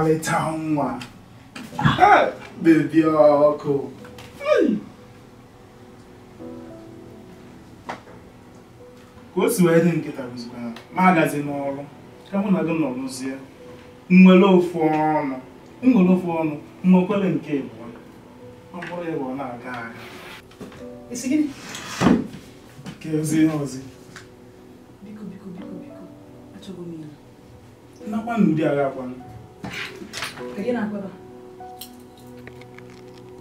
ọmalịcha nwa bebi ọkụ ka o si wee dị nkịta bụzikwana ma agazi n'ọrụ ka mụ na gị nọ n'ụzie nwere ofu ọnụ nwere ofu ọnụ nwekwere nke ịbụọ ọ bụrụ ịbụ ọ na-aga aga ka e ozi ihe ozi nakwa n'ụdị agha akwanụ 백이 날 거다.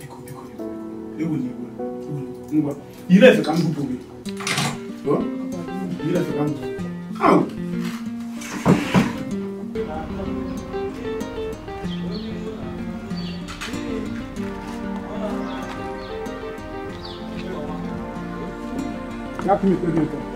이거 이거 이거 이거 이거 이거 이래서 강북 보기. 뭐? 이래서 강북. 아우. 야, 그게 어디 있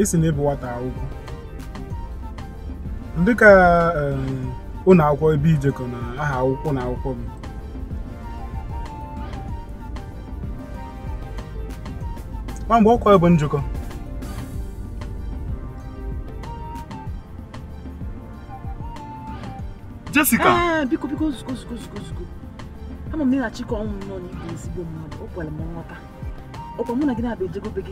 esi na ịbụ nwata akwụkwọ um, ọ na akwụkwọ ebe ijekọ na aha akwụkwọ na akwụkwọ m mgbe ọkwa bụ njikọ Jessica ah, biko biko ozugbo ama nnọọ ezigbo mmadụ ọ kwere m nghọta na gị na-abụ ejego gị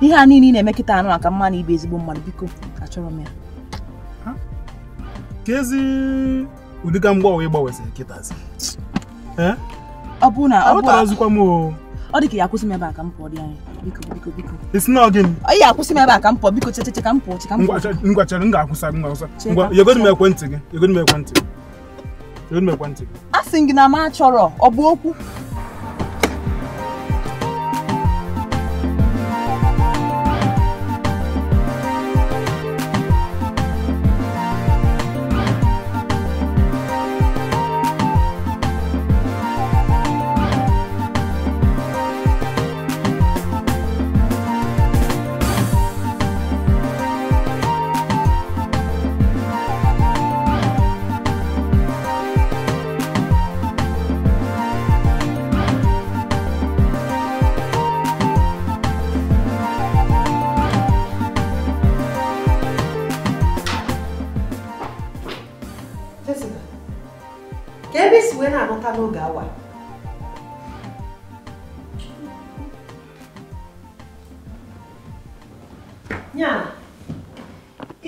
ihe a niile ị na-eme anụ maka mma na ibe ezigbo mmadụ biko achọrọ m ya ka ezi ụdịga mgbanwe ịgbanweziri kịtazi ọ bụ na ọ bụ azụkwa m ọ dị ka ya akwụsị m ebe a ka m pụọ dị anya biko biko biko isi na gịnị ọ akwụsị m ebe a ka m pụọ biko checheche ka m pụọ che ka m pụọ ngwa chere m ga-akwụsa gị ngwa ngwa yegodi m ekwentị gị yegodi m ekwentị gị yegodi m ekwentị gị asị gị na m achọrọ ọ bụ okwu n'oge nya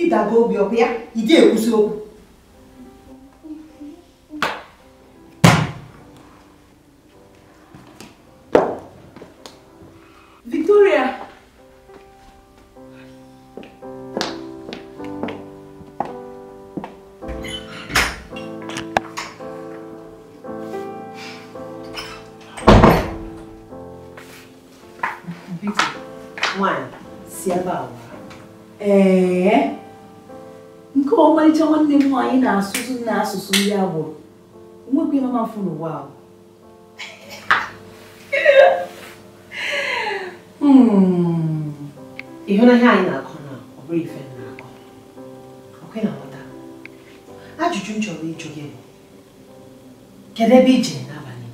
ịdago obi ọkụ ya ị dị ekwusi nnọọ anyị na-asụsụ ndị agbụrụ nwekwa ịmama mfu n'ụwa ahụ hmm. ịhụnanya anyị na-akọ na ife na-akọ ọkwe na nghọta ajụjụ m chọrọ ịjụ gị bụ kedu ebe ije n'abalị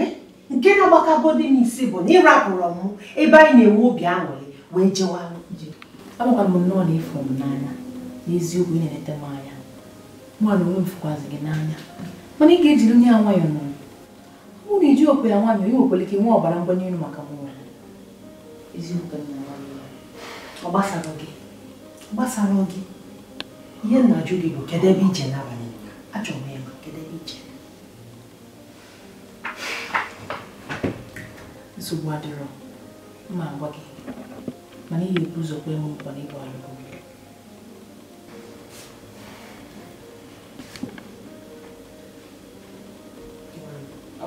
eh? nke na-agbakagodi n'isi bụ na ịrapụrụ m ebe anyị na-enwe obi aṅụrị wee jewa m nnọọ na n'eziokwu ị na-eleta m anya mmadụ onwe m fụkwazị gị n'anya mana ị ga-ejiri onye a nwayọọ nọ ọ bụrụ iji okwe ya nwanyị onye nwekwere ike nwee ọbara mgbanye elu maka mụnwa eziokwu na ọ gbasara gị gbasara gị ihe nna gị bụ kedu ebe ije n'abalị achọrọ m ịma kedu ije nsogbu adịrọ mma agwa gị mana ihe ga-ebu ụzọ kwe m nkwa na ịbụ alụgo gị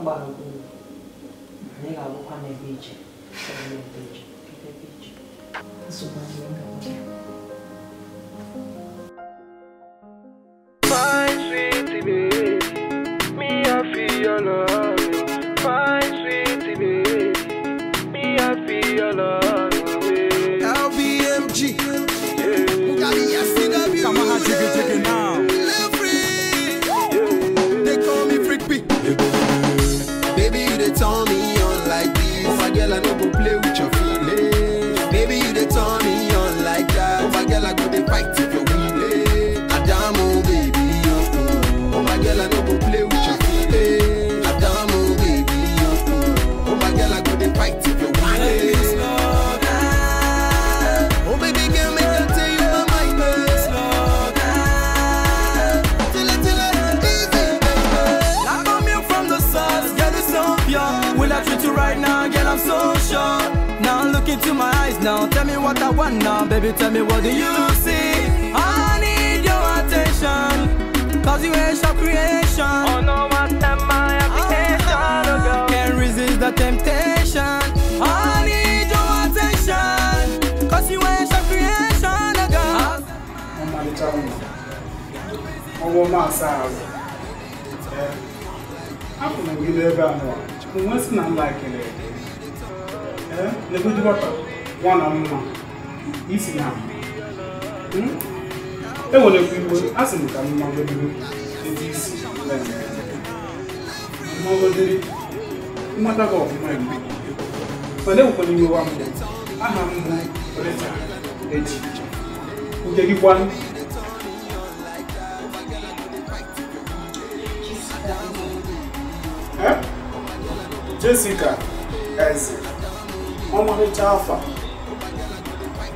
gbara okpuru na ị ga-agwụkwa n'ebe iche nsogbu n'ebe iche ebe iche now. Tell me what I want now, baby. Tell me what do you see? I need your attention, cause you ain't your creation. Oh no, my time, my application. Oh, oh, can't resist the temptation. I need your attention, cause you ain't your creation. girl. I'm I'm on my side. Hapụ na gị n'ebe a nọ, chukwu nwesị na nla ekele. Ee, na-egbu dị one on one isi na enwerekwa iwe a sị m ka m magodoro ebe isi magodoro mmata gị ọfụma igbo mana enwekwana iwe wa mbụ aha m bụ reta eji nke gị gbanụ Jessica Eze ọmarịcha afa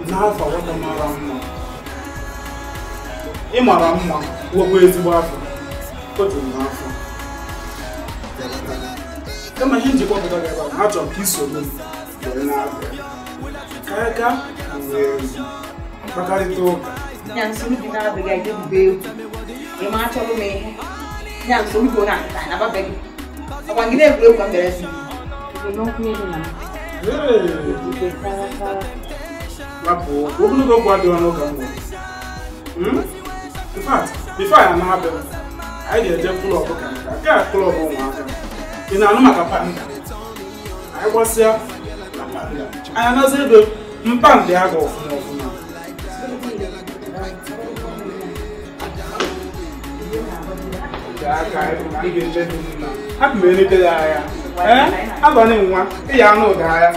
n'afọ nwata mara mma ị mara mma nwekwa ezigbo afọ o juru m n'afọ kama ihe njikwa pụta gị ebe a achọrọ ka isogbu m were na-abịa ka ya ka wee mkpakarịta ụka nya nsogbu gị na-abịaghị aga ebube egwu ịma achọrọ m ihe nya nsogbu gị ọ na-akụta na ababeghị ọkwa gị na-egwuregwu ka m bere si n'okwu elu na ee rapụ ogologo okwu adịghị ọnụ ka mgbe infat bifo anyị anaghị abịa anyị ga-eje klọb ka nka nke a klọb ụmụaka ị na-anụ maka panda anyị gbasịa na panda anyị anazi ego mpanda ya ga ọfụma ọfụma hapụ m elete ya agha ee abanye nwa ịya anụ ụda agha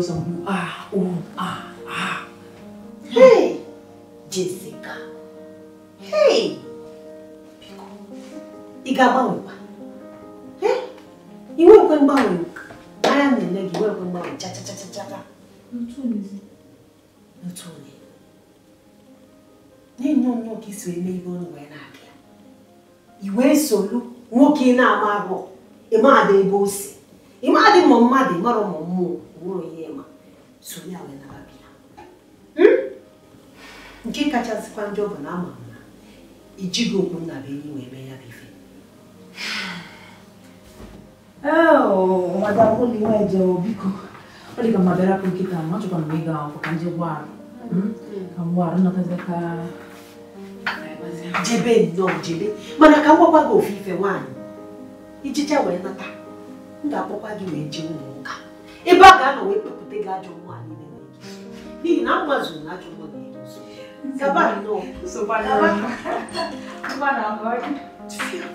those on ah, oh, ah, ah. Hey, Jessica. Hey, Biko. Ìgà báwo pa. Eh? Ìwọ pe ń báwo. Aya mi legi ìwọ pe ń báwo cha cha cha cha cha. Ntuni. Ntuni. Ni no no kiswe me ibo no we na ke. Ìwé solu nwoke na ama abọ. Ima ade ibo si. Ima ade mo mmadụ mara ụmụ mmụọ wụrụ ihe sonye wee nara gị nke kachasịkwa ndị ọ bụ na ama m na ijighị okwu nna be enyi wee mee ya bụ ife oh, adaoliwejewo biko ọ dị ka mma bịara nkịta m achọkwa m ịga akwụkwọ ka ndị ụgbọala hmm? ka ụgbọala nnọtazika jebe nnọọ jebe mana ka m gwakwa gị ofe ife nwaanyị ijicha wee nata m ga-akpọkwa gị ebe a ga-anọ wee kpepụta gị ajọ mmụọ n'ihi na zuru na ajọ mmụọ na-edozi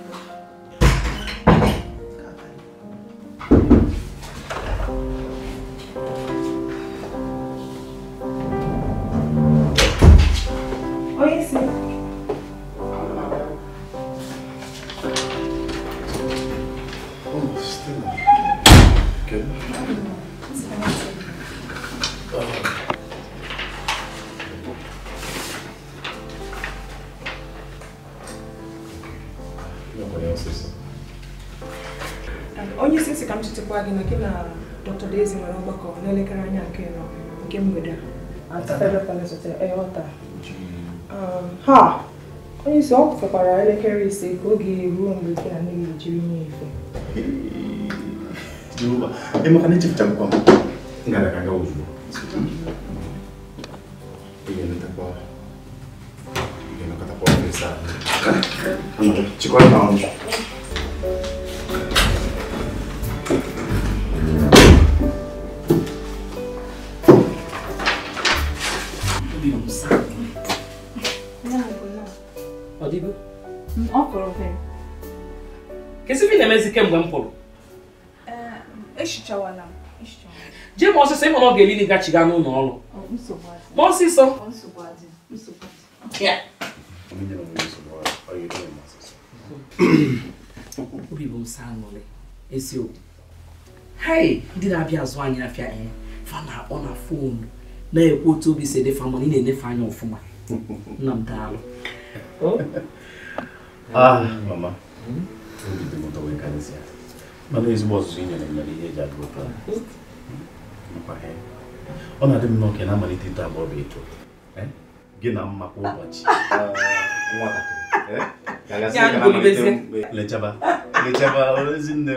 onye isi ka m chetakwa gị na gị na dr daisy nwere ọgbakọ n'elekere anya nke nọ nke mgbede eh, um, ha onye isi ọ fekwara elekere ise ka oge ruo mgbe gị na nne jiri nye ife emekwana ga-eli gachiga n'ụlọ ọrụ ma ọsịsọ obi bụ nsa aṅụrị hai ndị na-abịa azụ anyị afịa ihe eh, fa na-akpọ na foonu na-ekwu otu obi si edefa mana ị na-enyefe anya ọfụma nna m daalụ oh. ah, mama mana ezigbo ọzụzụ ị nyere nyere ihe eji agụ Eh? ọ na-adị m oke na-amalite ito abụọ bụ ito eh? gị na mma kwa ụbọchị eh? m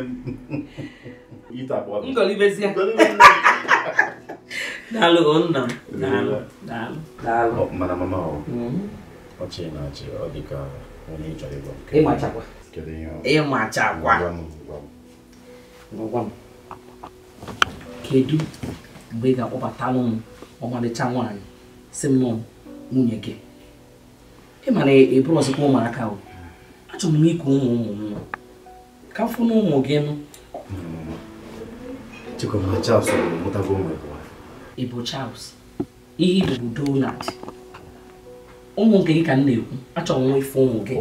ito abụọ daalụ daalụ mana mama ọchị hmm. na achị ọ dị ka onye ịgwa m kedu mgbe ị ga-akpọbatalụ m ọmalịcha nwaanyị si m nọ nwunye gị ị mara eburu e ọzọkwa ụmụaka o achọrọ m iku ụmụ ụmụ m ka m fụna ụmụ gị nụ ị bụ Charles ihe bụ ụmụ nke gị ka m na-ekwu achọrọ m ife ụmụ gị ihe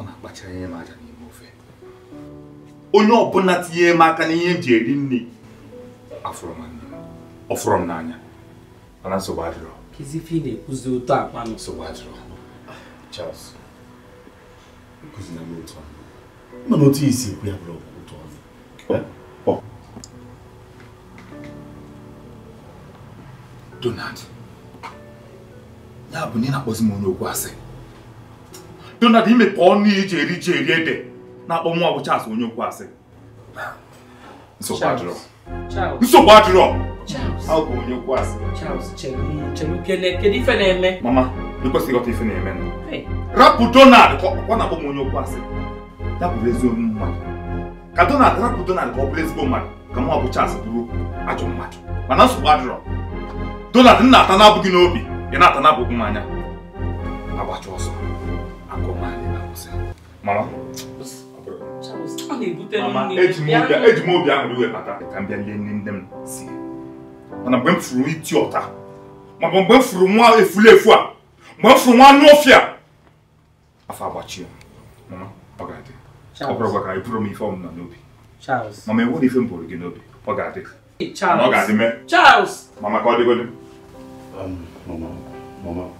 ọ na-akpachara ihe m aja n'ime ofe onye ọbụla tinye m aka n'ihe m ji eri nri m nne m n'anya mana nsogbu adịrọ na ụtọ akpa Charles otu otu ya bụrụ ụtọ Donald ya bụ na ị na-akpọzi m onye okwu asị Donald imepụ ọnụ iji eri ji eri ede na-akpọ Charles onye okwu asị nsogbu adịrọ adịrọ bụ ife na-eme mama ịkwesịghị ịghọta ife na-eme rapụ Donald ọ na-akpọ m onye okwu asị ya bụrụ ezigbo mmadụ ka Donald rapụ Donald ka ọ bụrụ ezigbo mmadụ ka bụ bụrụ ajọ mmadụ mana nsogbu adịrọ Donald n'a ata na-abụghị n'obi ị na-ata na m anya mara eji m obi ahụrụ iwe bata ka m bịa lee nne nne m si mana mgbe m furu iti ọta maọbụ mgbe m furu nwa efulefu a mgbe m furu nwa anụ ofi a afọ agbachie mama ọ ga-adị ọ bụrụ gwa ka ị bụrụ m ife ọmụma n'obi mama enwere ife m bụrụ gị n'obi ọ ga-adị mama ka ọ dịgodi mama mama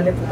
especial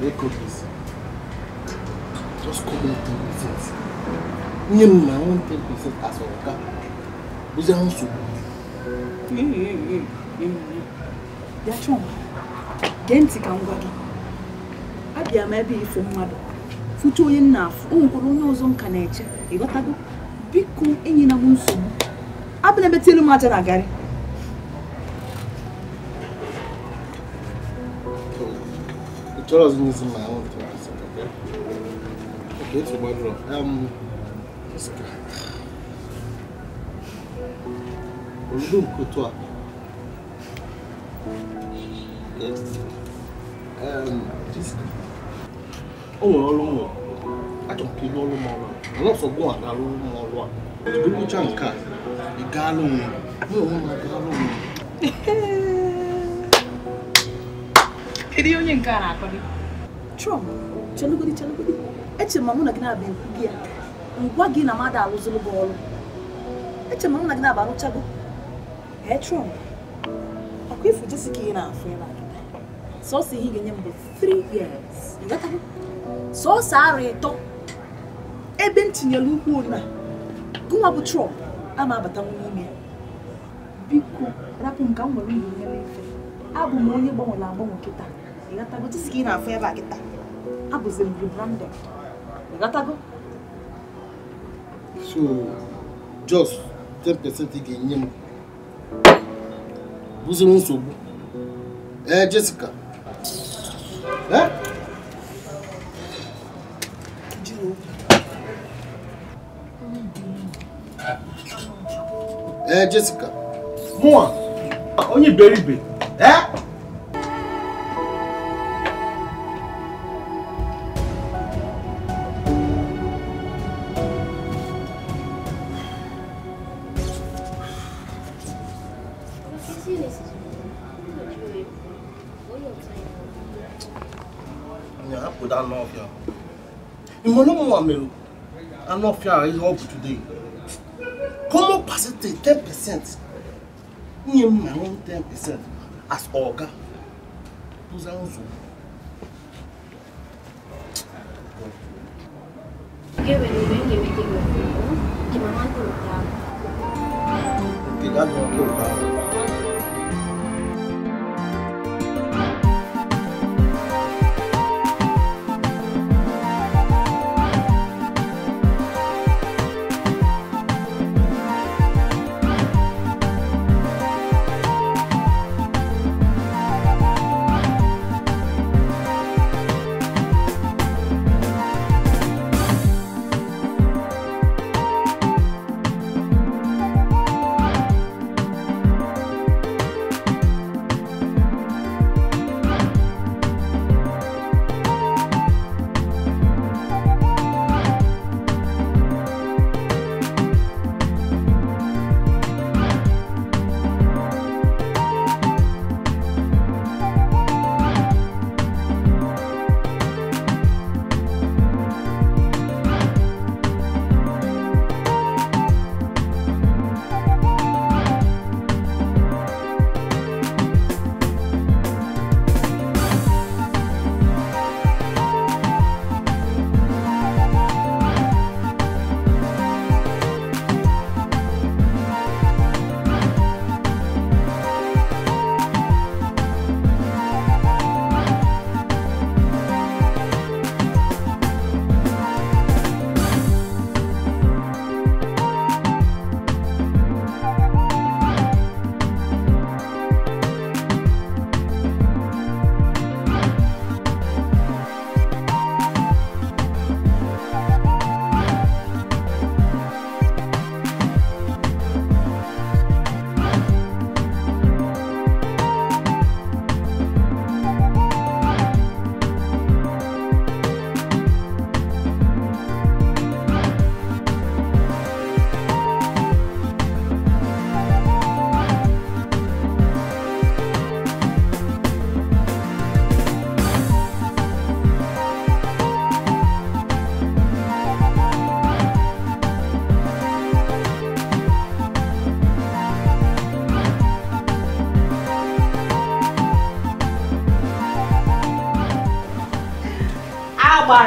make Just come in 10%. Nye m my own 10% as a worker. chọọ gee ntị ka m gwa gị. Abịa m ebe ifo mmadụ. Fụcha onye nna afụ, o onye ọzọ nka na-eche. Ịghọtago? Biko enyina m nsogbu. Abịa ebe tielu m aja Charles needs my own things, okay? Okay, it's a wardrobe. Um, this guy. Oludum Kutua. Yes. Um, this guy. Oh, Olumo. I can kill Olumo. I'm not so good at Olumo. If you reach on car, you got Olumo. No, no, no, no. Kedu onye nke a na gị. Trump, chelugodi chelugodi, echere m mụ na gị na-aba ekwu gị ya ngwa gị na mmadụ arụzụrụ gị ọrụ echere m mụ na gị na-aba arụchago ee Trump ọkụ ifu jesi ka ị na-afụ ya sọsọ ihe ị ga-enye m bụ 3 years sọsọ arụ ịtọ ebe m tinyere ukwu na gụnwa bụ Trump ama ma-abata n'ime ya biko rapụ m ka m nwere ihe ya n'efe abụ m onye gbanwere agbanwe kịta não diski ị na-afụ ebe a kịta abụzi m rebranded ịghọtago so just 10 percent ị ga-enye m bụziri nsogbu ee Jessica ee ee Jessica mụa onye iberibe ee Yeah, I put that love here. In Molomo Amelu, I know fear is up today. Common percentage 10%. Near my own 10% as Oga. Those are also. Okay, when you bring everything with you, the mama will come. Okay, that's what will come.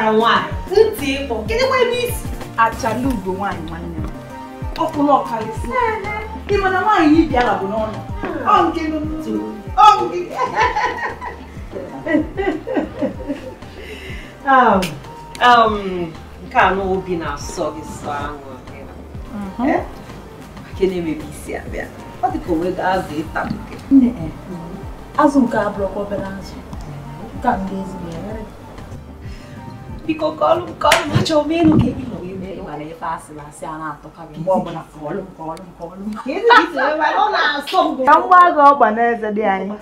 ara nwanyị ntị ịkpọ kedụkwa ebe isi achala nwanyị nwaanyị nwanne m ọkwụrụ ọkalịsị ị mana nwaanyị ibi bịara bụ n'ọnụ hmm. ọ nke n'ụtụ ọ nke um, um, a na obi na-asọ gị sọ aṅụ mhm. eh? gịnị mere isi abịa ọ dị ka onwe gị azụ ịta eh, azụ nke abụrụkwa obere azụ nke a ndị ezigbo biko kọlụm kọlụm kọọlụ m achọ n'oge ịnụ ka a ịmara ife asị na asị a na-atọkarị mgbe ọbụla kọọlụ m kọọlụ m kọọlụ m ka n'eze dị anyị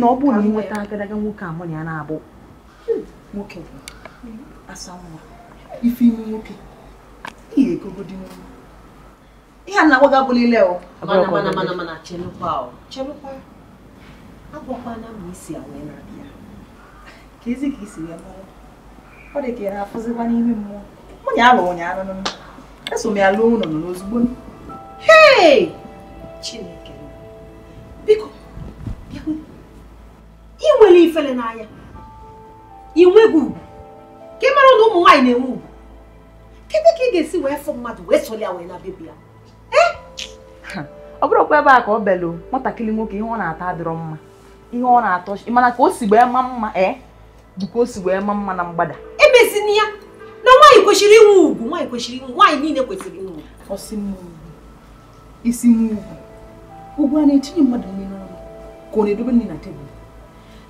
na ọ bụ na ị agadaga nwoke a mụ na ya na-abụ nwoke bụ asa nwa ife ime nwoke ihe nwa ihe a na-agwaga bụlile mana mana mana mana chelụkwa chelụkwa agwakwana isi a wee na-abịa ka ezi ya mara ọ dị ka ị na-afụzikwa n'ime mmụọ nwunye abụghị ụnyaahụ nụnụ eso m ya lụọ ụlọ nọ n'ozugbo hei chineke eu ị nwere ifele n'anya ị nweghị ugwu ka ị se o ụmụ nwaanyị na-enwe ugwu na bebi ya ọ bụrụkwa ebe a ka ọ belụ nwatakịrị nwoke ihe hona a ata adịrọ mma ihe ọ na-atọ mana ka é? dịka o si wee ma mma na mgbada emezini ya na nwaanyị kwesịrị inwe ugwu nwaanyị kwesịrị inwe nwaanyị niile kwesịrị inwe ọsị mmụọ isi n'ugwu ugwu a na-etinye mmadụ n'ime n'ọrụ ka ọ na-edobe nri na tebụl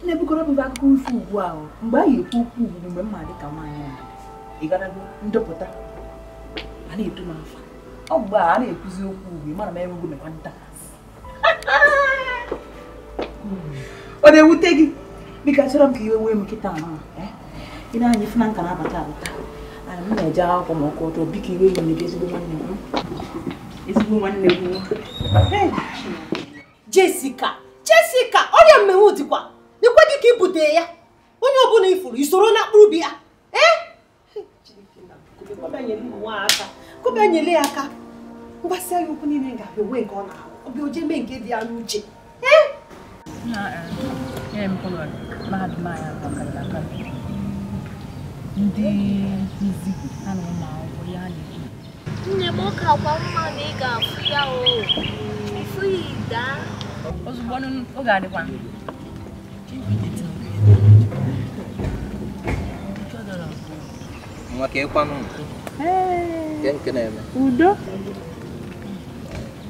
na-ebukọrọ bụ akụkọ ifo ugbu ahụ mgbe anyị ekwu okwu ugwu mgbe mma dị ka nwaanyị ịgarago ndepụta a na-eto m afa ọ mgbe a na-ekwuzi okwu ugwu mara m enweghị mekwa nta ọ na-ewute gị biko achọrọ m ka iwe wee m nkịta ahụ ị na anyị fụna na nka na-abata abata anyị m na-eje akwụkwọ ma ọkụ ọtọ iwe iwe n'ebe ezigbo nwanne m ezigbo nwanne m jesika jesika ọrịa mmenwu dịkwa n'ekweghị ka ibute ya onye ọbụla ifuru isoro na akpụrụ bi ya kụba nyele ya aka ya okwu niile ga nke ọ na-ahụ oje mee nke dị ya n'uche ee nyere m kọlọ mahadum ndị nkuzi ha eh. na ya na-ekwu nne m ụka kwa mma na ị ga-afụ ya o ifu ya ozugbo oge adịkwa nwa ka ịkwanụ na-eme udo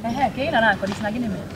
ehe eh, ka ị na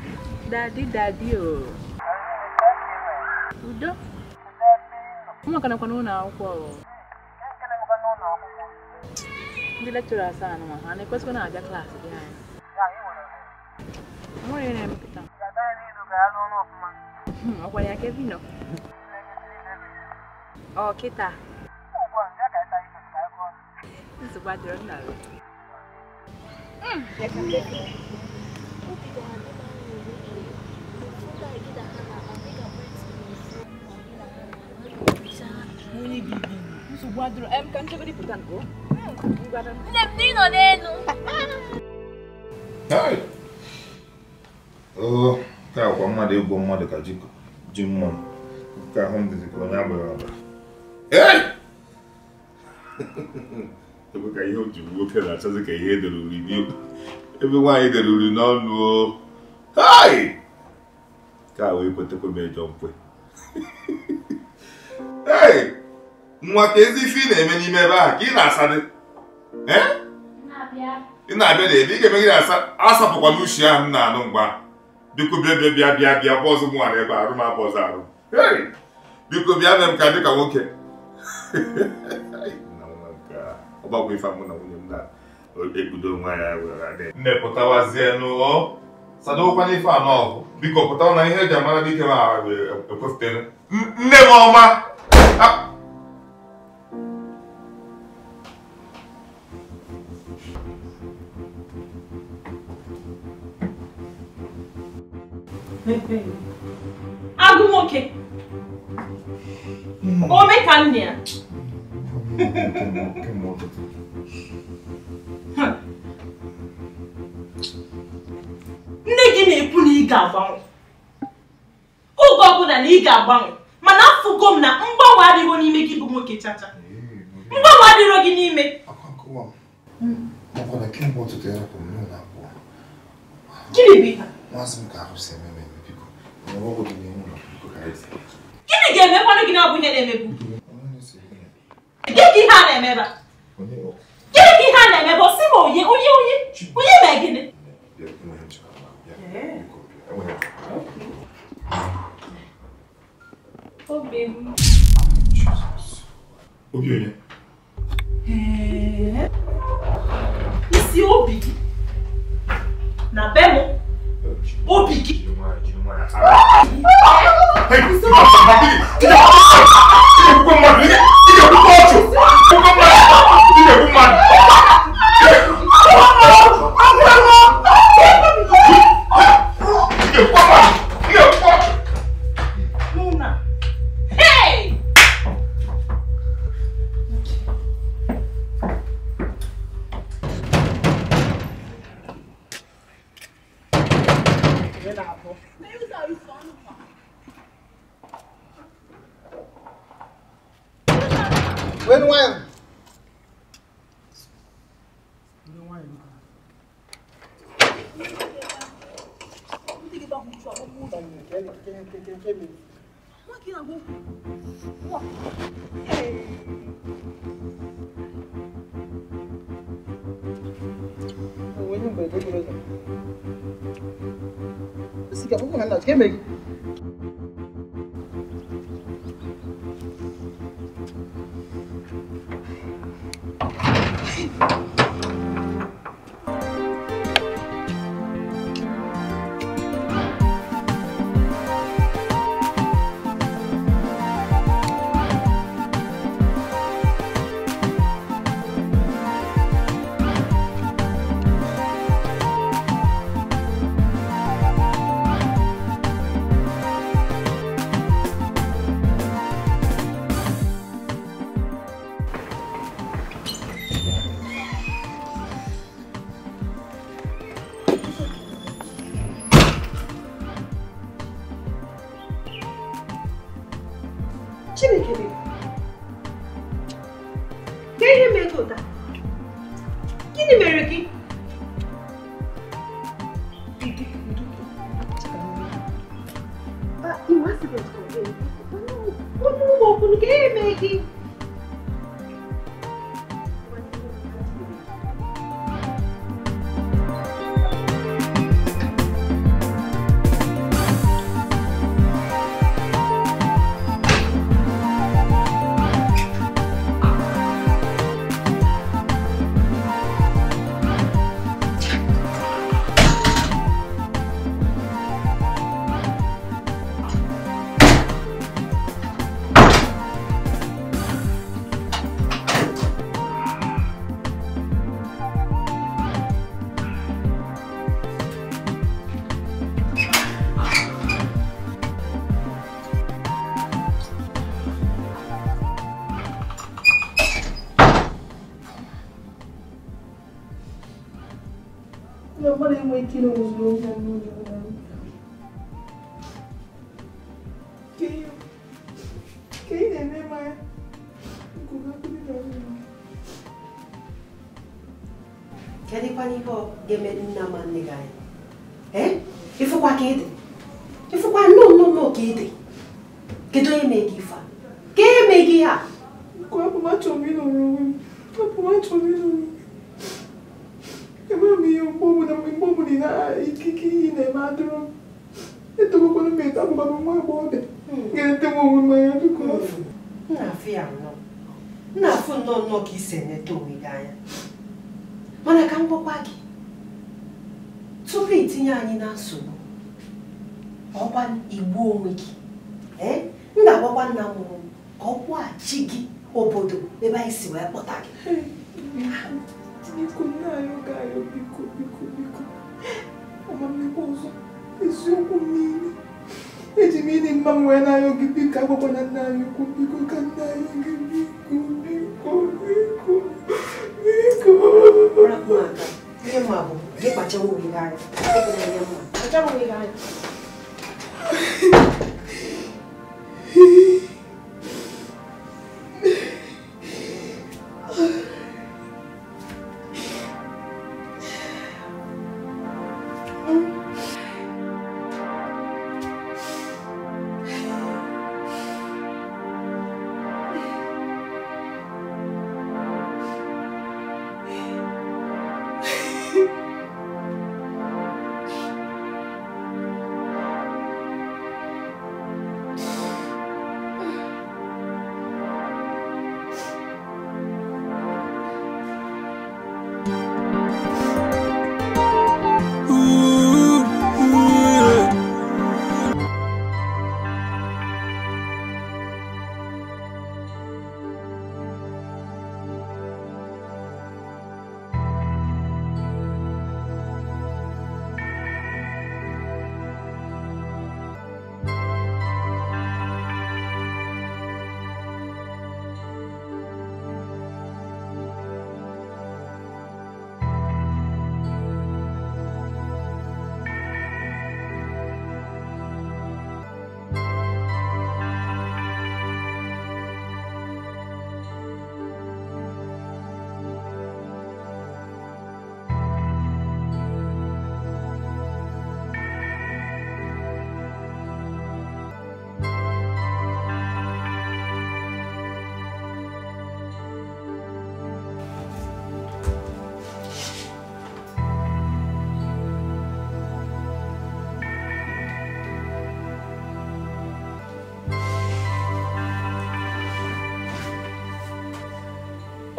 Daddy, daddy, oh. Udo? Kama kana kwa nuna akwụkwọ o. Ndị lecturer asaa n'ụwa ha na-ekwesịkwa na-abịa klaasị gị anyị. Nwere ihe na-emepụta. Ọkwa ya ka nọ. Ọ kịta. Nsogbu adịrọ nna Sụgbadoro o. Nne m akwa mmadụ egwu mmadụ ka ji Nke ahụ m ka onye agbara abara. Ebe ka ihe o nwoke na ka ihe edere uri Ebe nwaanyị dere uri n'ọnụ o. Hai! Ka wee kwetekwa m ịjọ mkwe. nwa ka ezi ife ị na-eme n'ime ebe a ka ị na-asa dị ị na-abịa na ebe ị ga-eme gị na-asa asapụkwa n'ushi ahụ m na-anụ mgba biko bịa bịa bịa bịa bịa bụ ọzọ nwara ebe arụ m abụ ọzọ arụ biko bịa mee m ka dịka nwoke ọgbakwa ife mụ na nwunye m na-ebudo nwa ya nne pụtawazie n'ụlọ sadokwana ife anọ biko pụtawa na ihe eji amara dike ma ekwefụtere nne m ọma agụ nwoke ome ka nne ya nne gị na-ekwu na ị ga-agbanwe oge ọbụla na ị ga-agbanwe mana afụgo m na mgbanwe adịghị n'ime gị bụ nwoke chacha mgbanwe adịro gị n'ime gịnị bụ ihe gịnị ga-emekwanụ gị n'ọbụ ihe na-emebu gịnị ka ihe a na-emebe gịnị ka ihe a na-emebe osi ma onye onye onye onye mee gịnị obi onye isi obi na be m obi my. Hey, biko biko ọzọ eziokwu niile eji m ịdị mma nwee wee n'anya gị biko agwakwa na nna anyị ukwu ka nna anyị gị biko biko biko biko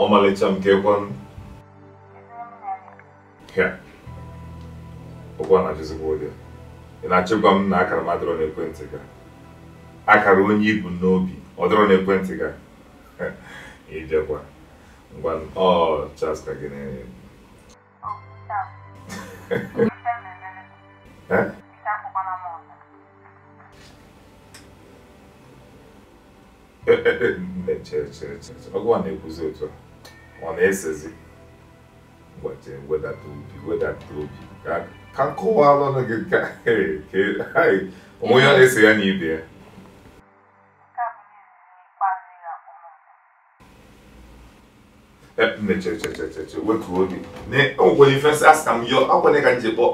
ọmalịcha nke ekwenụ a na-ajụzikwa ụdị ị na-achịkwa m na akara m adịrọ n'ekwentị gị akara onye ibu n'obi ọ dịrọ n'ekwentị gị ijekwa ngwa ọ Charles ka gị na-enye Ee, ee, ee, ọgwụ a na otu a ọ na-esezi ụbọchị wedata obi wedata obi ka ka nkọwala ọnụ gị ka onwe ya na-ese ya na ibe ya emechechecheche wetuo obi na o nwere ife asị ka m yọ akwanye ka njikpọ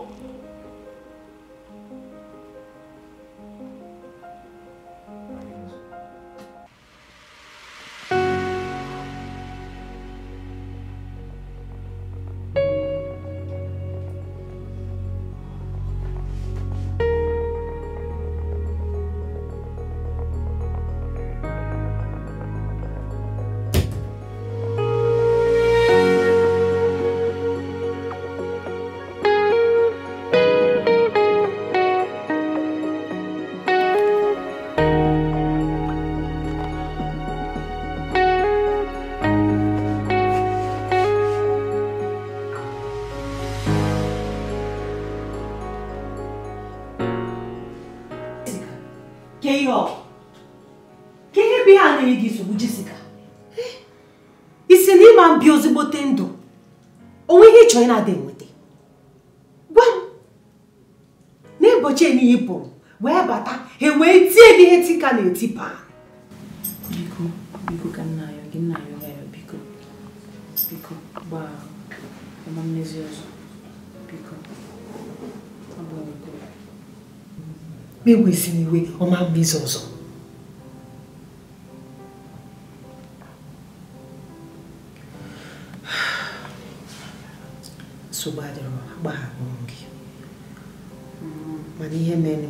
eti paa biko biko ka nna ayọ gị nna ayọ gị ayọ biko biko gbaa ọma mmezi ọzọ biko ọ bụ ọgụ egwesịrị iwe ọma mmezi ọzọ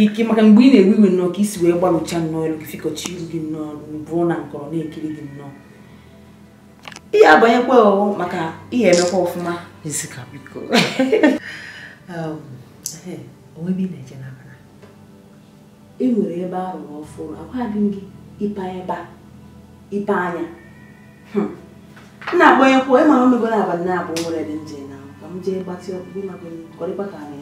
ike maka mgbe ị na-ewe iwe nnọọ ka isi wee gbalụcha nnọọ elu gị fikọcha iru gị nnọọ bụrụ na nkọrọ na-ekiri gị nnọọ ihe abanyekwa ọghọ maka ihe emekwa ọfụma um, e nwere ebe arụrụ ọfụrụ agwaghị m gị ipe ebe ịpa anya hmm. na-agbanyekwa ịmara omegoro abalị na-abụ nwere dị nje na ka m jee gbatị ọkpụkpụ maka kọrịkpa ka anya.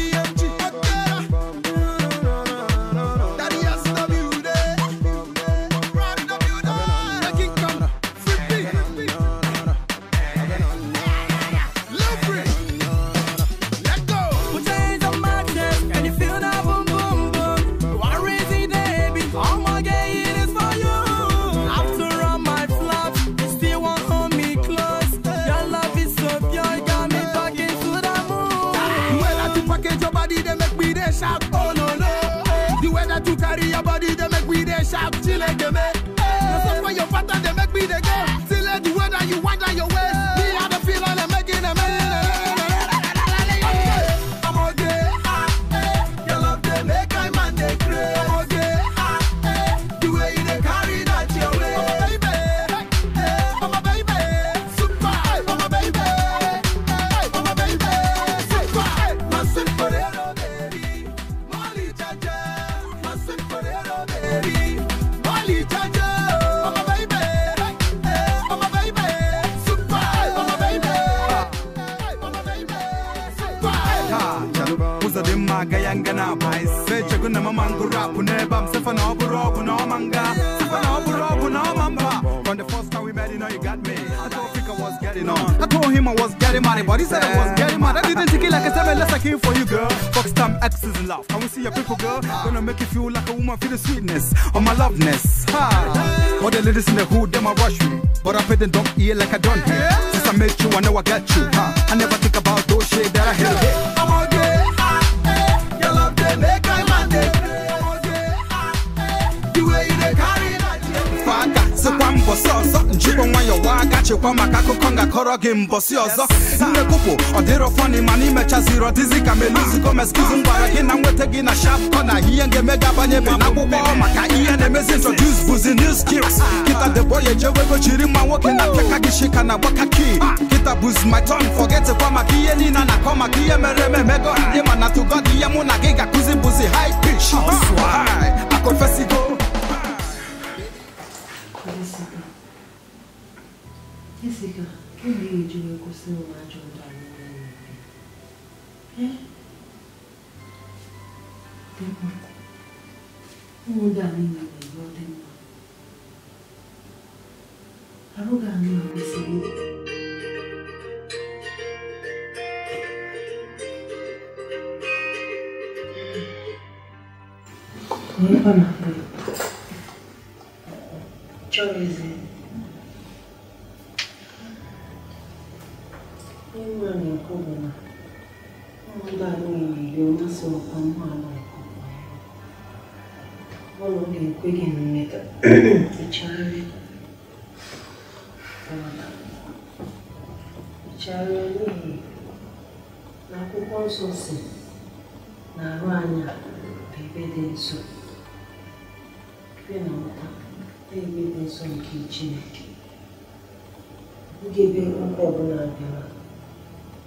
kuna mama ngurapu neba msefa na oburu ogu na omanga sefa na oburu ogu na from the first time we met you know you got me I told Fika was getting on I told him I was getting money but he said I was getting mad I didn't take it like a seven less I came for you girl fuck time X is in love can we see your people girl gonna make you feel like a woman feel the sweetness of my loveness ha all the ladies in the hood them I rush me but I pay them don't ear like I don't hear since I met you I know I got you ha I never think about those shit that I hate I'm all I, eh, your love they make I mbọsị ọzọ njikwa nwayọwa aka chekwa maka akụkọ ngakọrọ gị mbọsị ọzọ nnekwupụ ọ dịrọ fọni mana imechaziri ọdịzi ka meluziko meskizi ngwara gị na nweta gị na shap kọna ihe ga-eme gị abanye be maka ihe na-emezi introduce bụzi new skills kịta deboye jewego jiri mma nwoke na pịaka gị shika na gbaka ki kịta bụzi my ton fọgetekwa maka ihe niile na-akọ maka ihe mere eme emego ndị mana tugod ihe mụ na gị ga-akụzi bụzi high pitch akụfesigo Jessica, que vídeo eu costumo ajudar a minha É? Tem uma. Muda a né? minha língua, tem uma. Arrugar a minha cabeça. Nipa na. Choice. Ihe nwa na bụ na ụmụnna mmasị ọkwa ga-ekwe gị mmeta na akwụkwọ nsọ si na arụ anya ebe dị na ụta ebe dị nsọ nke Chineke ugebe ọbụla bịara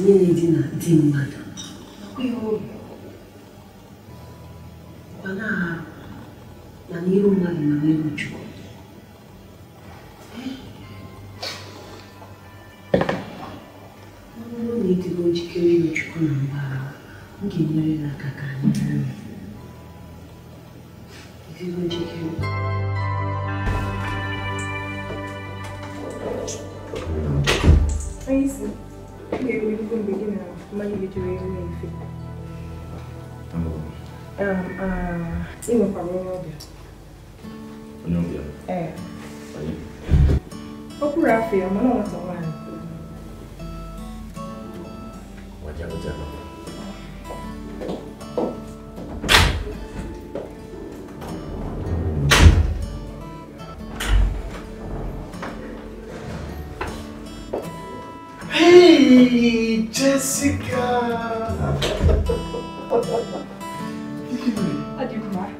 menino Jessica! Que livro?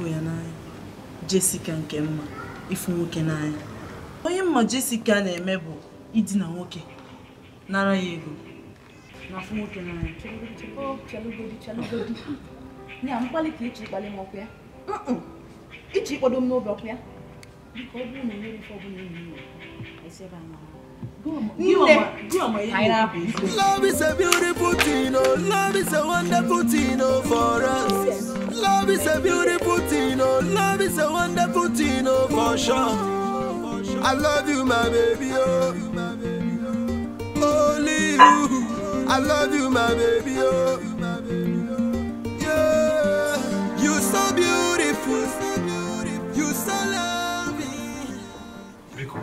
ịfụ ya n'anya Jessica nke mma ịfụ nwoke n'anya onye mma Jessica na-eme bụ idina nwoke nara ya ego na nwoke n'anya m ọkụ ya ọ bụrụ ya esi ebe a Love is a beautiful thing, oh. Love is a wonderful thing, oh, for us. Love is a beautiful thing, oh. Love is a wonderful thing, oh, for sure. I love you, my baby, oh. Only you. I love you, my baby, oh.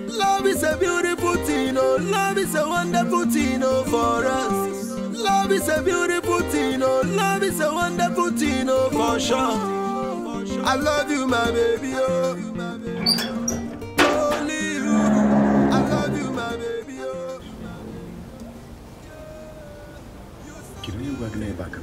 Love is a beautiful thing, oh, love is a wonderful thing, oh, for us. Love is a beautiful thing, oh, love is a wonderful thing, oh, for sure. I love you, my baby, oh. Only you, I love you, my baby, oh. Kìlọ̀ yóò gbàgbé náà ẹ̀ bá kan.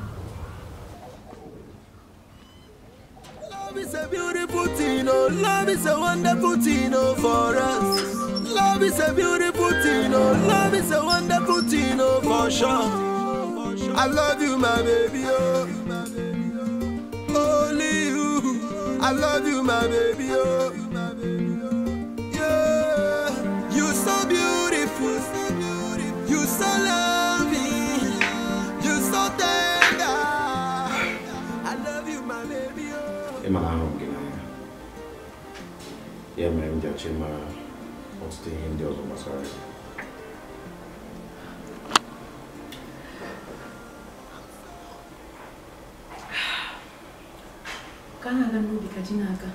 beautiful thing, oh. Love is a wonderful thing, oh, for us. Love is a beautiful thing, oh. Love is a wonderful thing, oh, for sure. I love you, my baby, oh. Only you. I love you, my baby, oh. eche ma ọtụtụ ihe ndị ọzọ gbasara ya ka na-aga ka ji na-aga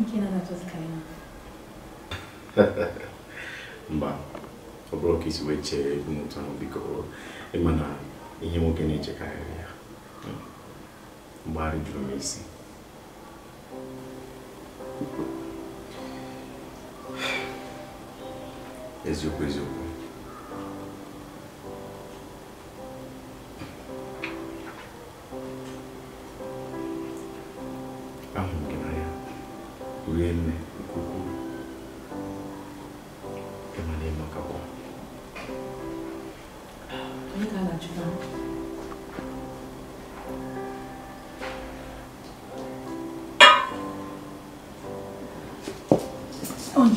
nke na ka ya mba ọ bụrụ isi wee chee ụmụtụ ahụ biko ịma na ihe nwoke na-echekarịrị ya mgbagharị jụrụ m isi eziokwu eziokwu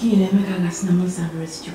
k He never can as numbers and rest you.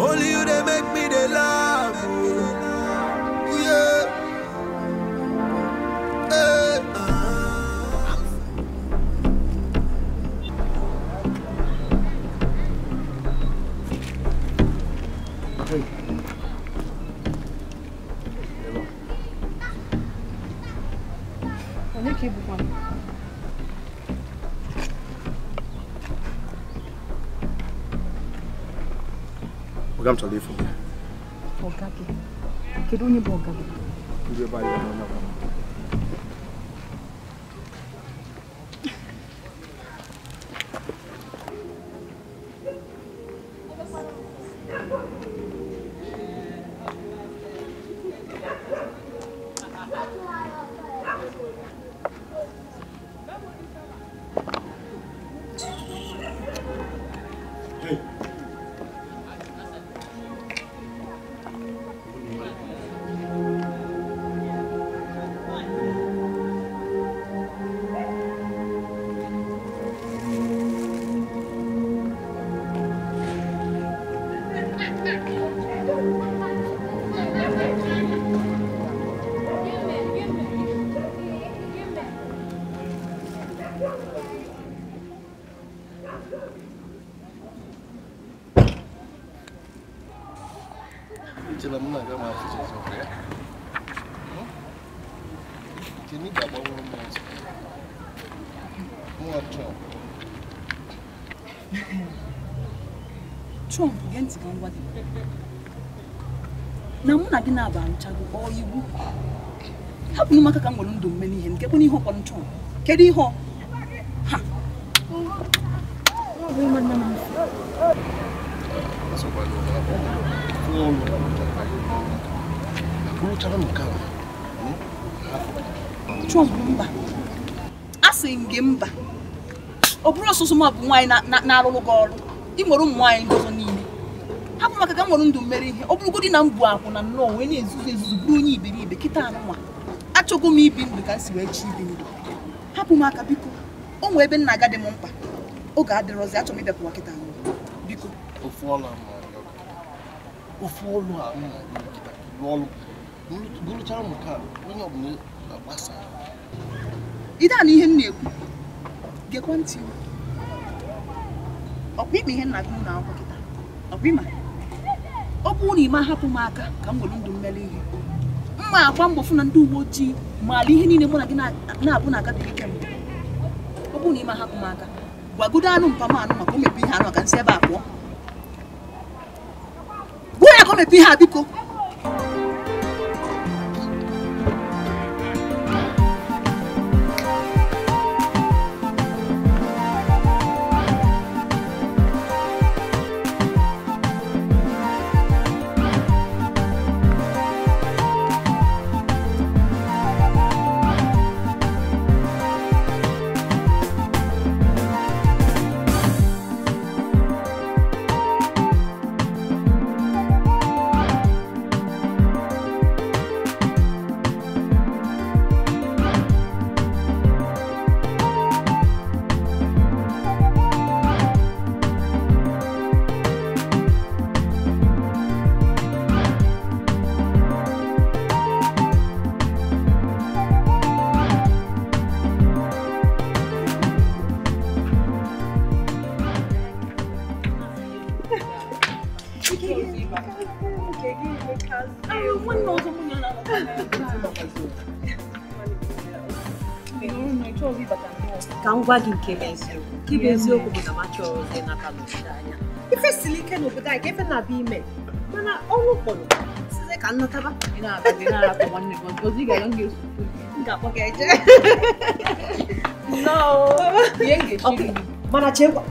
Olhe madam Talefu. Ọ̀gá kẹ̀, kedu onye bụ ọ̀gá ntị ka ngwa gị na mụ na gị na-aba arụchago ọ iwu hapụ m aka ka m nwere ndụ mme n'ihe nke bụ n'ihe ọkpọrọ nchọrọ kedu ihe ha Trump mba asị m gị mba ọ bụrụ ọsụsụ m bụ nwaanyị na-arụrụ gị ọrụ ị nwere ụmụ nwaanyị ọzọ. hapụ maka ka m nwere ndụ mmeri ihe ọ bụrụgodị na m bụ akwụ na nnọọ wee na-ezuzu ezuzu bụrụ onye iberibe kịta anụnwa achọgo m ibi ndụ ka m si wee chi ibi ndụ hapụ m aka biko o nwee ebe nna agadi m mkpa oge adịrọzi achọrọ m ịbịapụwa kịta anụnwa biko ofu ọlụ ofu ọlụ a m ka onye ọbụla agbasa ide a na ihe m na-ekwu gekwa ntị ọkwa ịkpa ihe nna gị na akwụkwọ kịta ọkwa ịma ọ bụrụ hapụ m aka ka m were ndụ mmeri ihe mma akwa mbọ fụ na ndị uwe ojii maara ihe niile mụ na gị na-abụ na aga dị ike ọ bụrụ hapụ m aka gwagodo anụ mpam anụ maka o mepe ihe anụ aka nsị ebe a pụọ gbuo ya ka o ihe a biko ngwa gị nke bụ eziokwu nke bụ eziokwu bụ na machọrọ ndị n'aka n'obodo anya ife siri ike n'obodo anyị ka efe na ime mana ọnwụ ụfọdụ site ka nnọtaba mana chekwa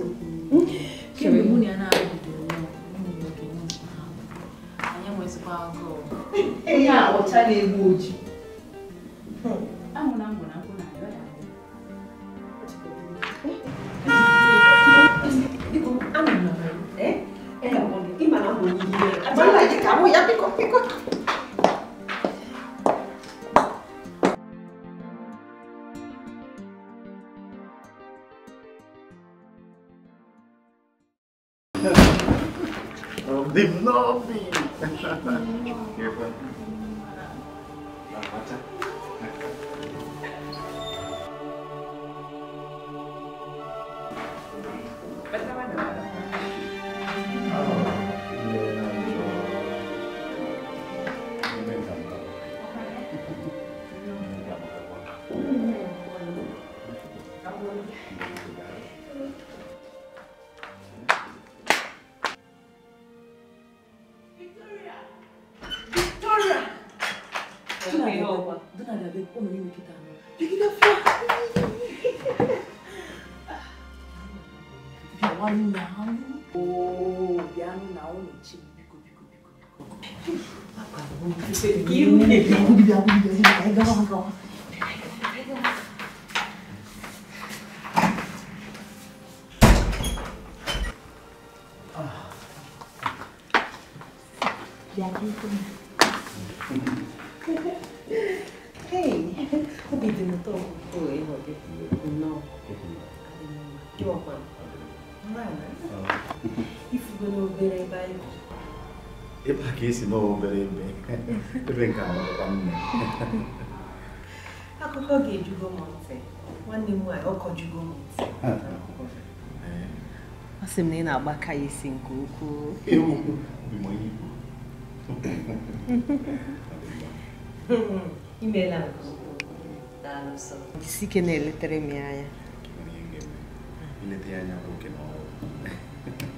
eziokwu kemgbe na ya na-abidoro anyị enwezikwa agụụ ọcha na-egbu oji ka esi n'obere ebe ebe nke amakwa nne akụkọ ga-ejugo m ntị nwanne m ọkọ ọkọ m ntị ọ sị m na ị na-agbaka ya isi nke ukwuu imeela nke ukwuu na-eletere m ya anya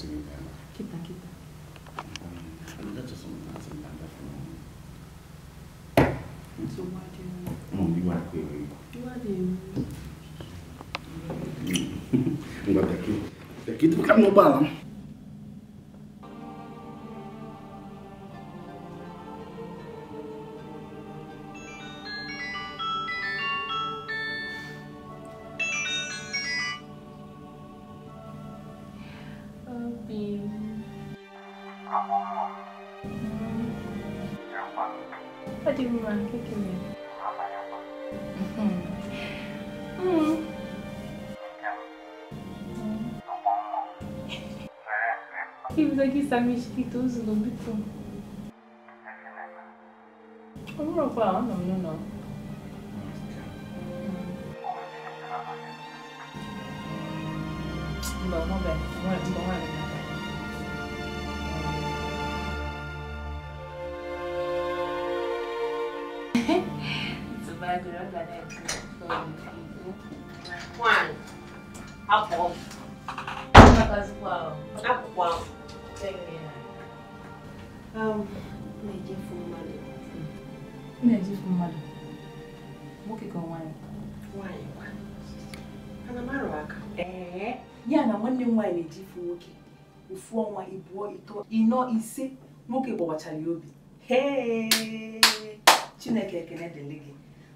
지금이야. 기타 기타. 안다 저 손나 손나 다 손. 소마디. 응 이거 할 거예요 이거. 이거지. 이거 daqui, daqui tu fica no balão. ịnọ ise nwoke gbawachara ya obi chineke ekele dịrị gị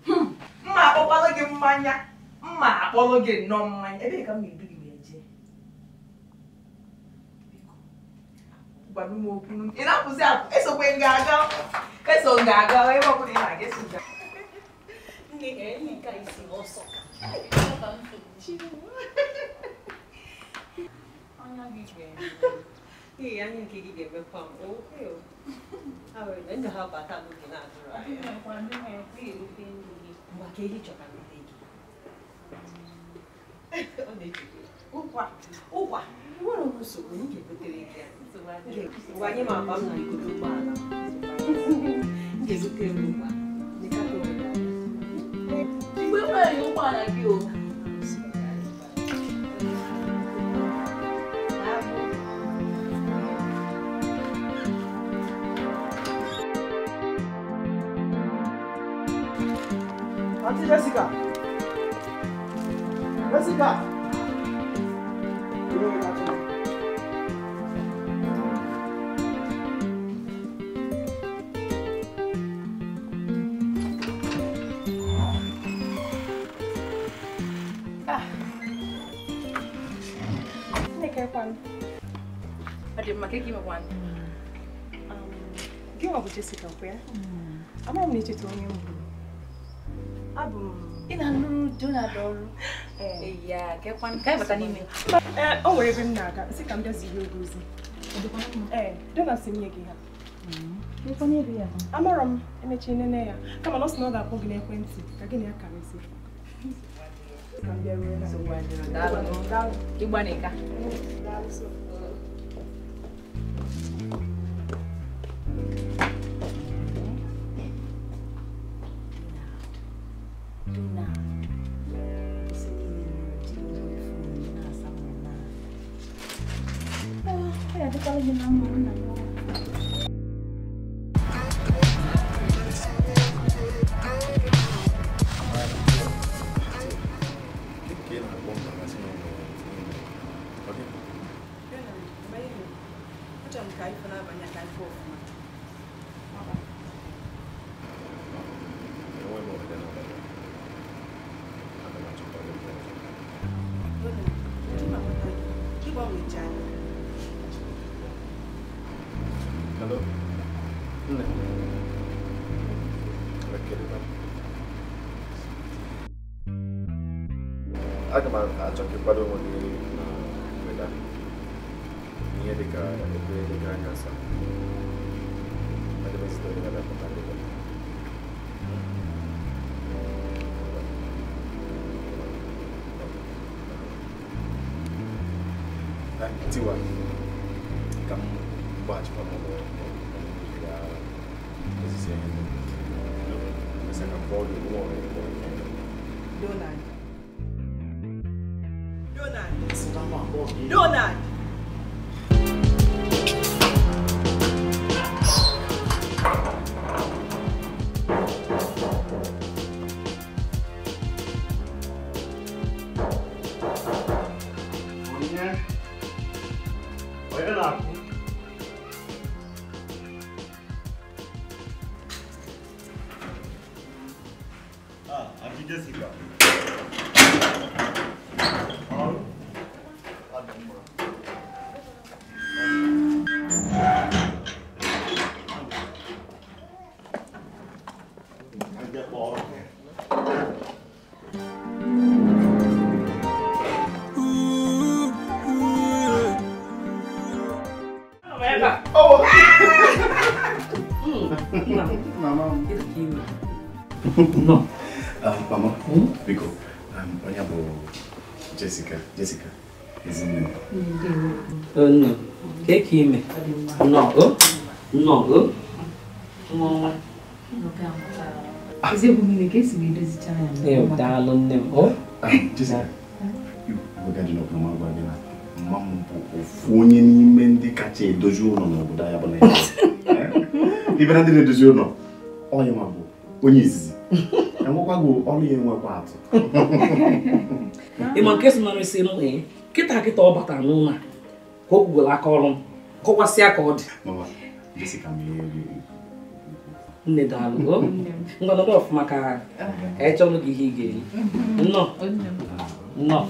hmm, mma akpọkwala gị mmanya mma akpọrọ gị nnọọ mmanya ebee ka m ga-edu gị wee jee gwara m okwu ị na akwụsị apụ esokwe m ga-aga eso m ga-aga ebe ọbụla ị na-aga eso ga ọsọ Ee, anyị nke gị ga-emekwa m ndụ ha bata n'oge na-adụrụ anyị mgbe ka ehi chọka nne gị ọ na-ejide ụkwa ụkwa nwere m nsogbu m ga-ebutere gị ya anyị m akpa m na igodo ụgbọala ga-ebutere m mgbe nwere gị o amaghị m n'etiti onye m gburu abụ m ị na-alụrụ donald ọrụ ya eh. e e e bata n'ime eh, o nwere ebe m na-aga sị ka m bịa bịazie oge ozi ee eh, donald si nye gị ha mm-hmm. amara m emechi nene ya kama na ọ sị na ọ ga-akpọ gị n'ekwentị ka gị na ya karịzi Thank you. quadro monnaie na moeda. ada de cara, de cara, ada cara, nessa. Mas eu vou ver se dá pra dar pra Tiwa, kamu baca nak bawa dia buat No, not. Jessica. Jessica. Ezinne. Oh, Não, Take him. No. Não, No. Oh. No. Não, nne m mma Não, bụ ofu onye Não, ndị kacha não Não, n'obodo anyị bụ Não, ndị na-edozi Não, onye nwa bụ Não, izizi não gị Não, ya enwekwa atụ ịma nke si na esi nụ ee kịta kịta ọ batara n'ụlọ a ka o kwugoro aka ọrụ m kọwasịa ka ọ dị nne daalụ ngwanọdụ ọfụma ka echọnụ gị ihe ị ga-eri nnọọ nnọọ